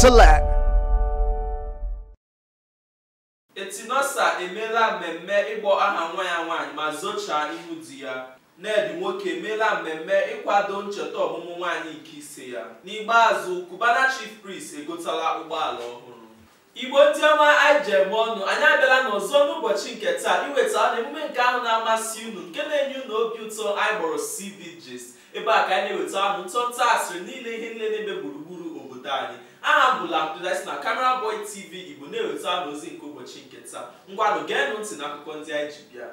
select. Etinosa emeela mmemme ịkpọ aha nwa ya nwaanyị ma zochaa ihu di ya. Ned nwoke emeela mmemme ịkwado ncheta ọmụmụ nwaanyị nke ise ya. N'ikpeazụ, Cubana Chief Priest egotala ụgbọala ọhụrụ. Igbo ndị ọma anyị ọnụ anyị abịala n'ọzọ n'ụbọchị nke taa iweta na emume nke ahụ na-amasị unu nke na-enye unu obi ụtọ anyị kpọrọ CB ebe a ka anyị na-eweta ahụ ntọntọ asịrị niile ihe niile na-eme gburugburu obodo anyị aha bụ Abdulrasheed na kamera Boy TV Igbo na-eweta n'ozi ozi nke ụbọchị nke taa ngwanụ geenụ ntị n'akụkọ ndị anyị ji bịa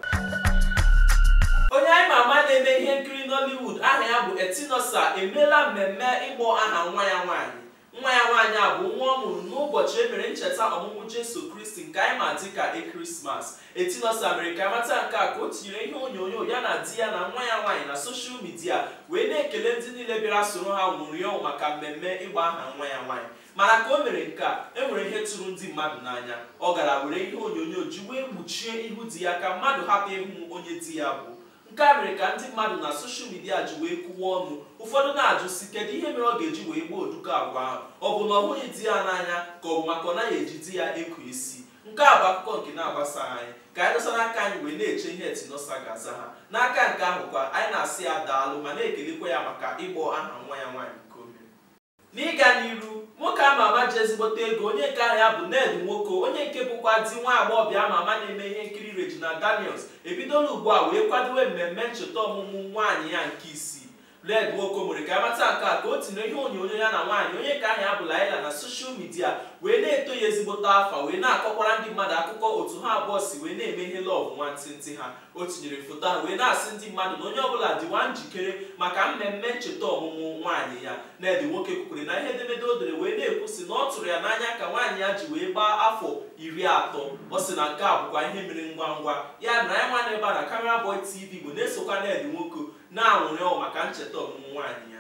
onye anyị ma ama na-eme ihe nkiri Nollywood aha ya bụ Etinosa emeela mmemme ịkpọ aha nwa ya nwaanyị nwa ya nwaanyị a bụ nwa ọ mụrụ n'ụbọchị e mere ncheta ọmụmụ jesu kristi nke anyị ma dị ka ekerismas etinosa mere ka amata nke a ka o tinyere ihe onyonyo ya na di ya na nwa ya nwaanyị na soshal midia wee na-ekele ndị niile bịara soro ha nwụrụ maka mmemme ịgba aha nwa ya nwaanyị mana ka o mere nke a e nwere ihe tụrụ ndị mmadụ n'anya ọ gara were ihe onyonyo ji wee kpuchie ihu di ya ka mmadụ hapụ ịhụ onye di ya bụ nke a mere ka ndị mmadụ na soshal midia ji wee kụwa ọnụ ụfọdụ na-ajụ si kedu ihe mere ọ ga-eji wee gbuo oduko agwa ahụ ọ bụ na ọ bụghị di ya n'anya ka ọ bụ maka ọ naghị eji di ya ekwu isi nke a bụ akụkọ nke na-agbasa anyị ka anyị dọsa n'aka anyị wee na-eche ihe etinosa ga-aza ha n'aka nke ahụ kwa anyị na-asị ya daalụ ma na-ekelekwa ya maka ịgbọ aha nwa ya nwaanyị nke n'ịga n'iru nwoke ama ama ji ezigbote ego onye nke aha ya bụ Ned Nwoko onye nke bụkwa di nwa agbọghọbịa ama ama na-eme ihe nkiri Regina Daniels ebidola ugbu a wee kwadowe mmemme ncheta ọmụmụ nwaanyị ya nke isii red nwokomori ka amata nke a ka o tinye ihe onyonyo ya na nwaanyị onye ka ahụ abụla Laila na soshal midia wee na-eto ya ezigbote afa wee na-akọkwara ndị mmadụ akụkọ otu ha abụọ si wee na-eme ihe lọv nwantịntị ha o tinyere foto ahụ wee na-asị ndị mmadụ na onye ọbụla dịwa njikere maka mmemme ncheta ọmụmụ nwaanyị ya ned nwoke kwukwere na ihe edemede o dere wee na-ekwu si na ọ tụrụ ya n'anya ka nwaanyị ya ji wee gbaa afọ iri atọ ọ sị na nke a bụkwa ihe mere ngwa ngwa ya na ya nwa na ebe a na TV bụ na-esokwa ned nwoke na-anwụrị ọwụ maka ncheta ọmụmụ nwaanyị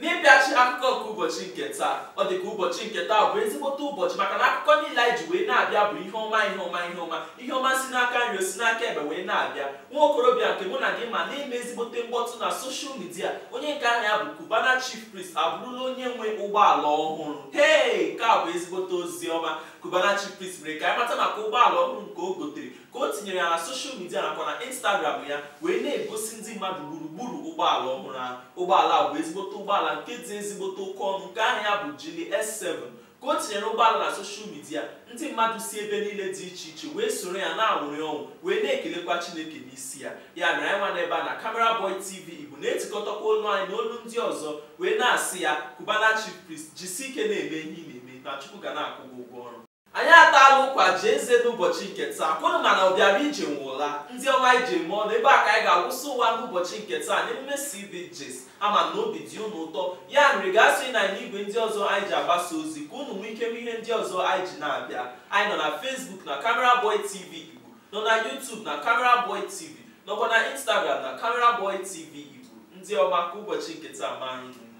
n'ịbịachi akụkọ nke ụbọchị nke taa ọ dị ka ụbọchị nke taa bụ ezigbote ụbọchị maka na akụkọ niile anyị ji wee na-abịa bụ ihe ọma ihe ọma ihe ọma ihe ọma si n'aka nri si n'aka ebe wee na-abịa nwa okorobịa nke mụ na gị ma na-eme ezigbote mkpọtụ na soshal midia onye nke aha ya bụ Cubana Chief Priest abụrụla onye nwe ụgbọala ọhụrụ hee nke a bụ ezigbote ozi ọma kubana Chief Priest mere ka anyị mata maka ụgbọala ọhụrụ nke o gotere ka o tinyere ya na soshal midia nakwa na Instagram ya wee na-egosi ndị mmadụ gburugburu ụgbọala ọhụrụ ahụ ụgbọala bụ ezigbote ụgbọala ụgbọala nke dị ezigbote oke ọnụ nke aha bụ jili S7 ka o tinyere ụgbọala na soshal midia ndị mmadụ si ebe niile dị iche iche wee soro ya na-awụrị ọnwụ wee na-ekelekwa chineke n'isi ya ya mere anyị nwana ebe a na Boy TV Igbo na-etikọtakwa olu anyị na olu ndị ọzọ wee na-asị ya kubanachi Chief jisi ike na-eme ihe ị na-eme na Chukwu ga na-akwụ gị ụgwọ ọrụ anyị atala ụkwa jee nze n'ụbọchị nke taa kwụrụ na ọbịara ije nwụla ndị ọma ije mụọ na ebe a ka anyị ga-akwụsị ụwa n'ụbọchị nke taa n'emume CBJs ama na obi dị unu ụtọ ya nri gasị na anyị igwe ndị ọzọ anyị ji agbasa ozi ka unu nwee ike ihe ndị ọzọ anyị ji na-abịa anyị nọ na fesbuk na Camera Boy TV Igbo nọ na YouTube na Camera Boy TV nọkwa na Instagram na Camera Boy TV Igbo ndị ọma ka ụbọchị nke taa ma anyị